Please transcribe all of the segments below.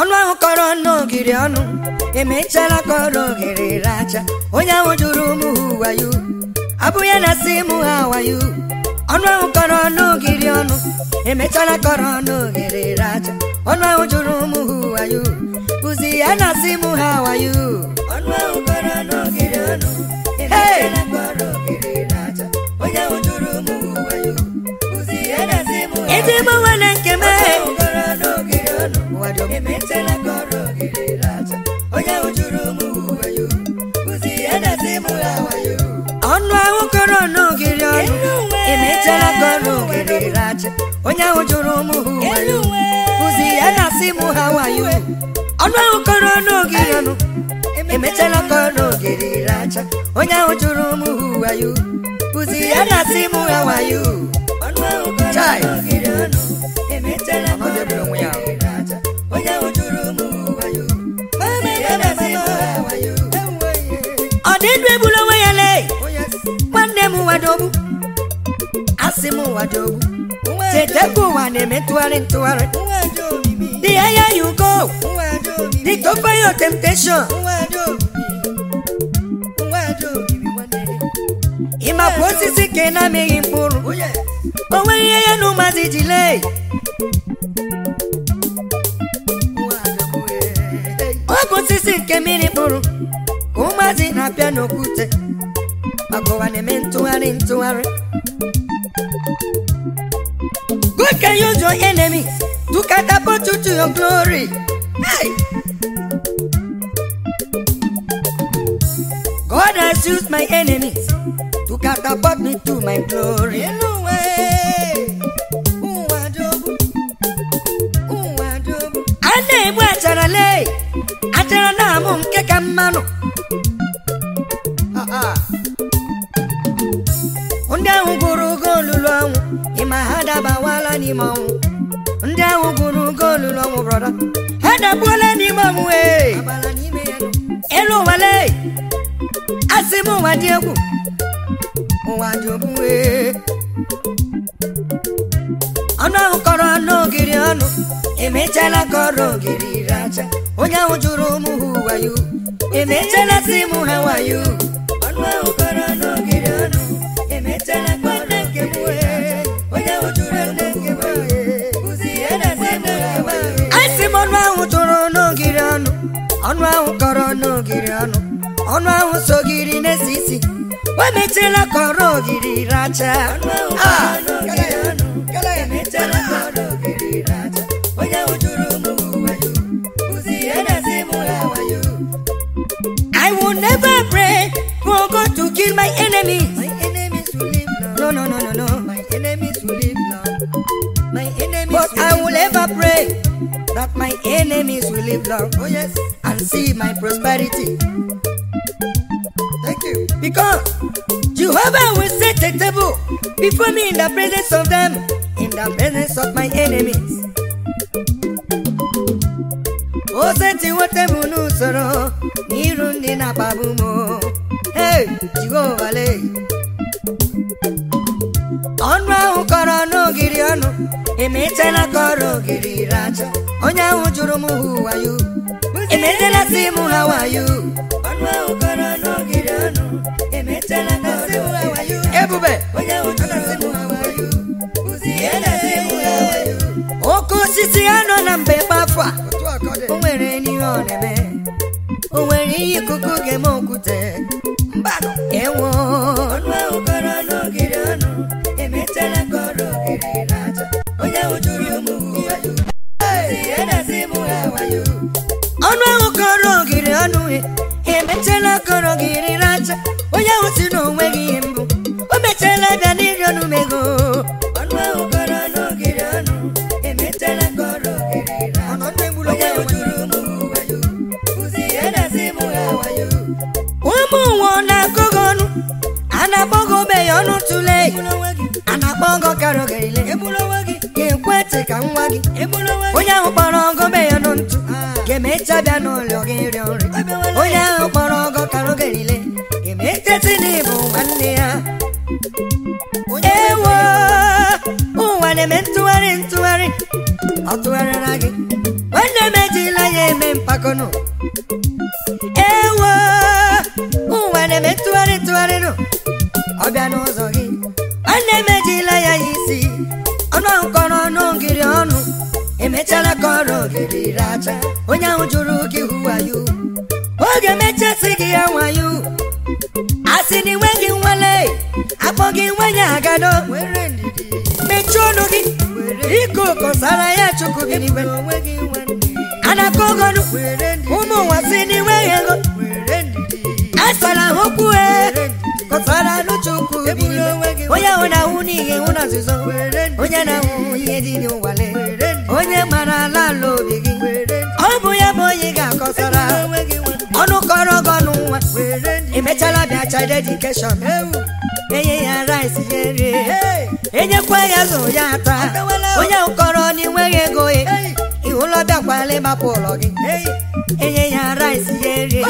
Ọnụ ahụ kọrọ ọnụ ogiri ọnụ emechara kọrọ ogiri racha onye ahụ jụrụ ụmụ ha wayo abụghị na si mụ ha wayo ọnụ ahụ kọrọ ọnụ ogiri ọnụ emechara kọrọ ọnụ ogiri racha ọnụ ahụ jụrụ ụmụ ha wayo ụzi ya na si mụ ha wayo ọnụ ahụ kọrọ n'ogiri ọnụ e ji gbanwe nke m ọnụ ahụ kọrọ n'ogiri ọnụ kọrọ ogiri racha onye ahụ jụrụ ụmụ ha kụzi ya na asị mụ ha wayo ọnụ ahụ kọrọ n'ogiri ọnụ emetela kọrọ ogiri racha onye ahụ jụrụ ụmụ ha wayo kụzi ya na asị mụ ha wayo chai ọ debere onwe ya dị ndụ egbula ya lee nwanne m wadogbu asị m wadogbu chetekwa ụwa na-eme ntụgharị ntụgharị dị anya ya ugo dịka ofe ya temptation ịmakwa osisi ka ị na-amịghị mkpụrụ o nwere ihe ya na ụmụazị ji lee ọ bụ osisi nke mmiri kpụrụ ka ụmụazị na abịa n'okwute agụwa na-eme ntụgharị ntụgharị God can use your enemies to catapult you to your glory. Hey! God has used my enemies to catapult me to my glory. n'ime ọnwụ ndị ahụ gụrụ goolu olulu ọnwụ brọda ha dakpuola n'ime ọnwụ elu nwale. asị m ụwa dị egwu ụwa dị ogbue ọnụ ahụ kọrọ ogiri ọnụ emechala kọrọ ogiri ire aja onye ahụ jụrụ ụmụ ha wayo emechala si mụ ha wayo ọnụ ahụ kọrọ n'ogiri ọnụ ọnụ ahụ sogiri na isi o kọrọ ogiri racha I will never pray for God to kill my enemies. My enemies will live long. No, no, no, no, no. My enemies will live long. My enemies. But I will never pray. that my enemies will live long, oh yes, and see my prosperity. Thank you. Because Jehovah will set a table before me in the presence of them, in the presence of my enemies. O oh, setiwote m oh, n'usoro n'iru ndị na-akpagbu m. Hey, Jehovah lee. emetela ka ọrụ ogiri racha onye ahụ jụrụ m hụwayo emetela si m hawayo ọnụ ahụ kọrọ n'ogiri ọnụ ka ọrụ ebube onye jụrụ oke osisi ya nọ na mbe kpafụ a o nwere n'ihe ọ o nwere ihe ikuku ga-eme okwute a na-akpọ ọgọ kara ogerile ga-ekwe ka nwa gị onye ahụ kpọrọ ọgọ be ya nụ ntụ ga-emecha bịa n'ụlọ gị rịọ nri onye ahụ kpọrọ ọgọ kara ogerile ga-emecheti n'ịbụ nwanne ya ewo ụwa na-eme ntụgharị ntụgharị ọ tụgharịra gị nwanne m ejila ya eme mpakọnụ ọnụ ahụ kọrọ ọnụ ngiri ọnụ emechara kọrọ ogiri racha onye ahụ jụrụ gị wayo oge mechasị gị ya wayo asị na gị nwale akpọ gị nwenye agado mechie ọnụ gị ike ụkọsara ya chukwu gị n'iwe anaka ogonu ụmụ nwa si n'iwe ego asara ahụ kwue kọsara onye ahụ na-awụ n'ihe nwụ na nzuzo onye na-awụ ihe dị n'ụwale onye mara ala ala obi gị ọ bụ ya bụ onye ga-akọsara ọnụ kọrọ gị ọnụ nwa emechala bịa child education enye ya rice ya rie enyekwa ya zụ ya ata onye nkọrọ kọrọ na ịnweghị ego e. ịhụlọ bịakwala ịmapụ ụlọ gị enye ya rice ya rie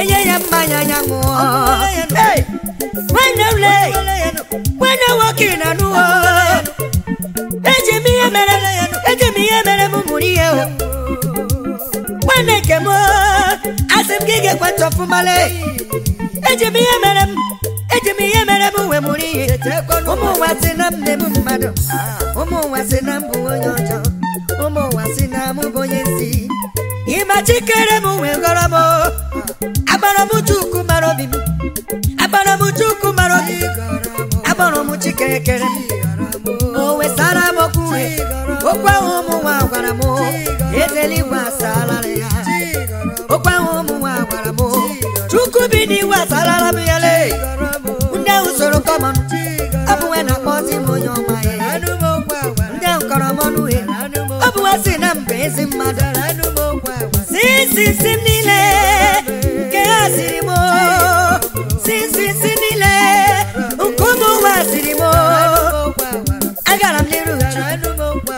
enye ya mmanya ya ṅụọ when no lay when walking na nu eje mi mere eje e mere mu muri when e male mere eje mi e e wa si na mne mu na ekere o wesara m okwu uhe okwu ahụ ụmụ nwa gwara m ezeli igwe asalara ya okwu ahụ ụmụ nwa gwara m chukwu bi n'iwu asalara m ya lee. ndị ahụ soro kọma m, bụ nwe na-akpọzi m onye ọma ya ndị ahụ kọrọ m ọnụ uhe ọ bụ nwe si na mba ezi mmadụ si si si m niile nke ha siri m si si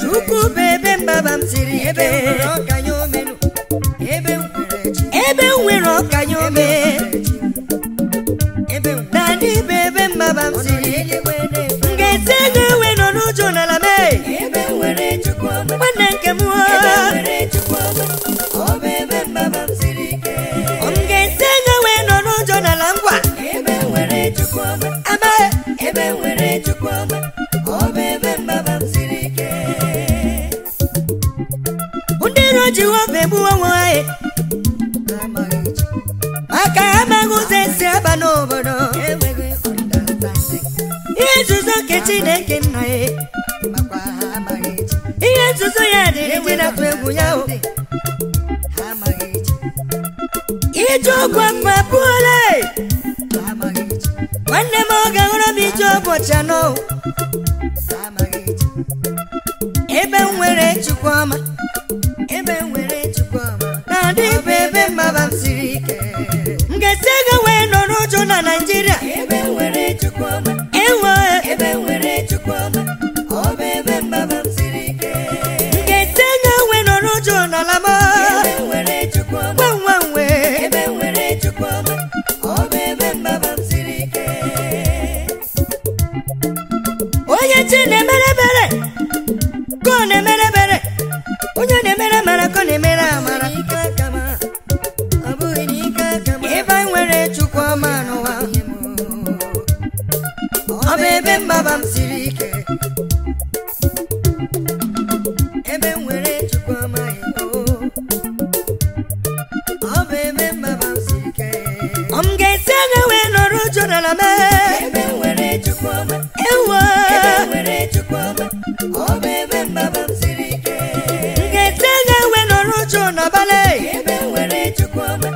chukwu bụ ebe mbaba m siri ike ebe nwere ọkanye ome chineke nna ya ihe nzuzo ya dị ndị e na-atụ egwu ya o ije ọgwụ mma pụọla nwanne m ọ ga m ije ụbọchị anọ Nkechi ga-ewe nọrọ uchu n'ọbala ebe nwere Chukwuma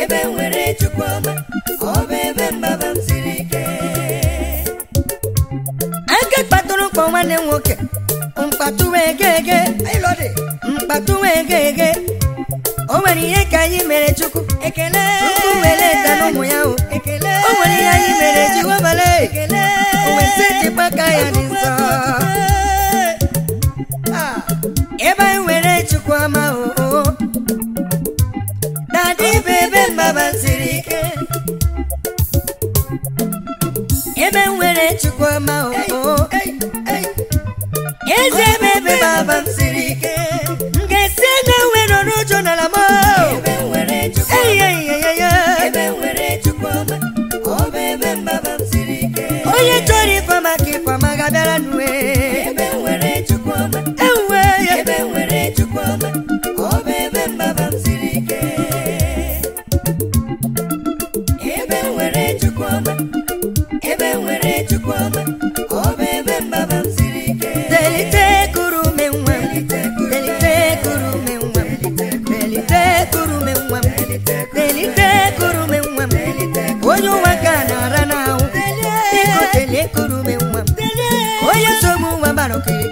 ebe nwere ebe mbaba ike aka kpatụrụ nwanne m nwoke mkpatuwe egege o nwere ihe ka anyị mere Chukwu ekele were ya o ebe nwere Chukwuma o eze que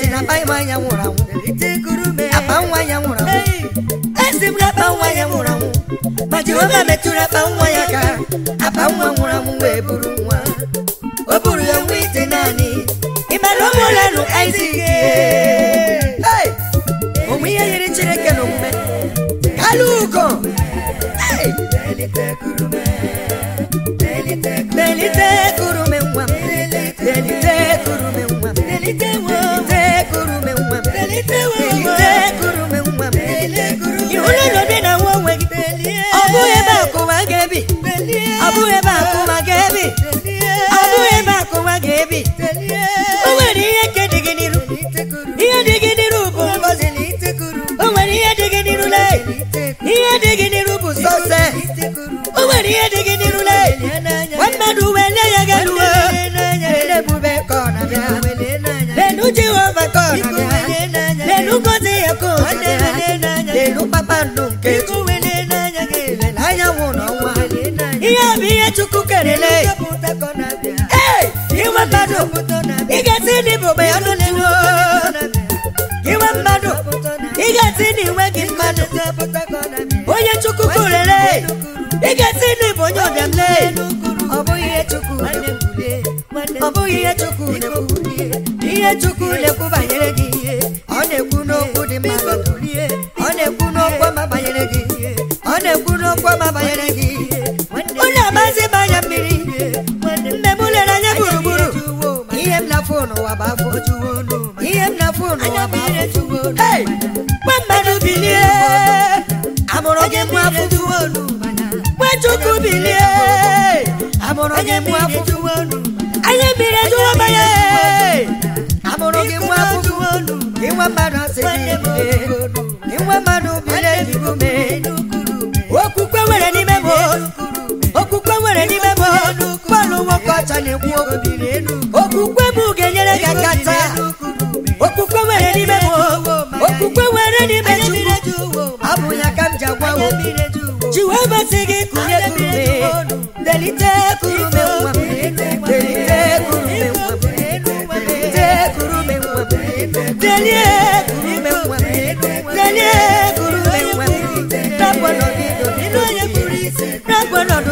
sị na akpa nwa ya nwụrụ anwụ akpa nwa ya nwụrụ anwụ esi m na akpa nwa ya ma metụrụ akpa nwa ya ka akpa nwa nwụrụ bụrụ nwa o buru ya nwa ite naanị ịmara ụmụ ihe yiri Chineke na ebe ebe ihe dịghị n'iru ihe dịghị n'iru bụ o ihe n'iru ihe dị n'iru bụ sọse o nwere ihe dị gị chukwu kelele ee inwe mmadụ ị ga-esi ndị bụ ogbe ọnụ n'ihu inwe mmadụ ị ga-esi ndị gị mmadụ onye chukwu kelele ị ga-esi ndị bụ onye ọbịamle ọ bụghị ihe chukwu na-ekwu ihe chukwu na banyere gị ọ na-ekwu n'okwu dị mma ọ na-ekwu n'okwu ọma banyere gị anya mmiri nne m lere ihe m na-afụ bụ afọ ihe m na-afụ bụ afọ gwa mmadụ bilie amụrụ gị mụ afọ chukwu bilie amụrụ gị mụ afọ anya mmiri ejuwo amụrụ gị mụ afọ ịnwa mmadụ asị gị kacha na-ekwu okwukwe ga-enyere gị kata okwukwe nwere n'ime m okwukwe nwere n'ime chukwu abụ ya ka m ji agwawo ji wee gị kụnye delite kurume nwa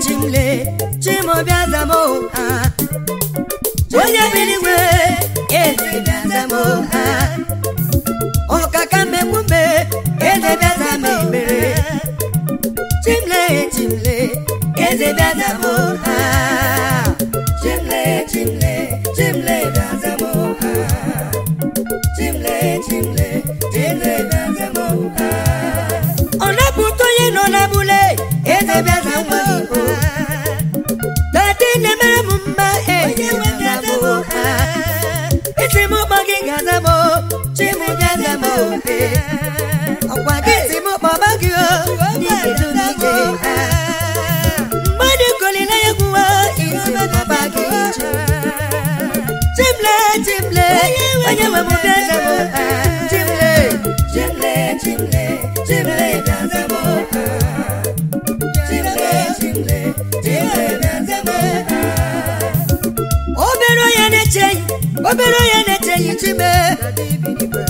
chimle chimobiazamo onye biligwe ezebiazamo ọkaka mmekwumbe ezebiazama ebere ha ọkwa gị si m kpọba gị o isi gị obere onye na-echeghị obere onye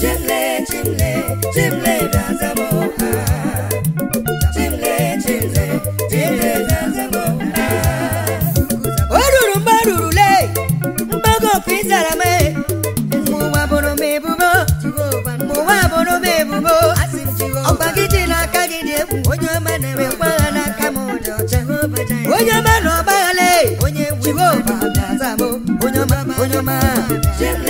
chimle chimle chimle na-azama ọha chimle chimle o ruru mgbe o rurule mgbago oku mee. m mụwa bụrụ m bụrụ m gị dị n'aka gị dị egwu onye ọma na-eme mgbagha n'aka m onye ọma na onye